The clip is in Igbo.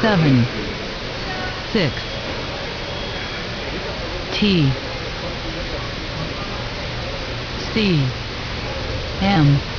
seven, six, T, C, M.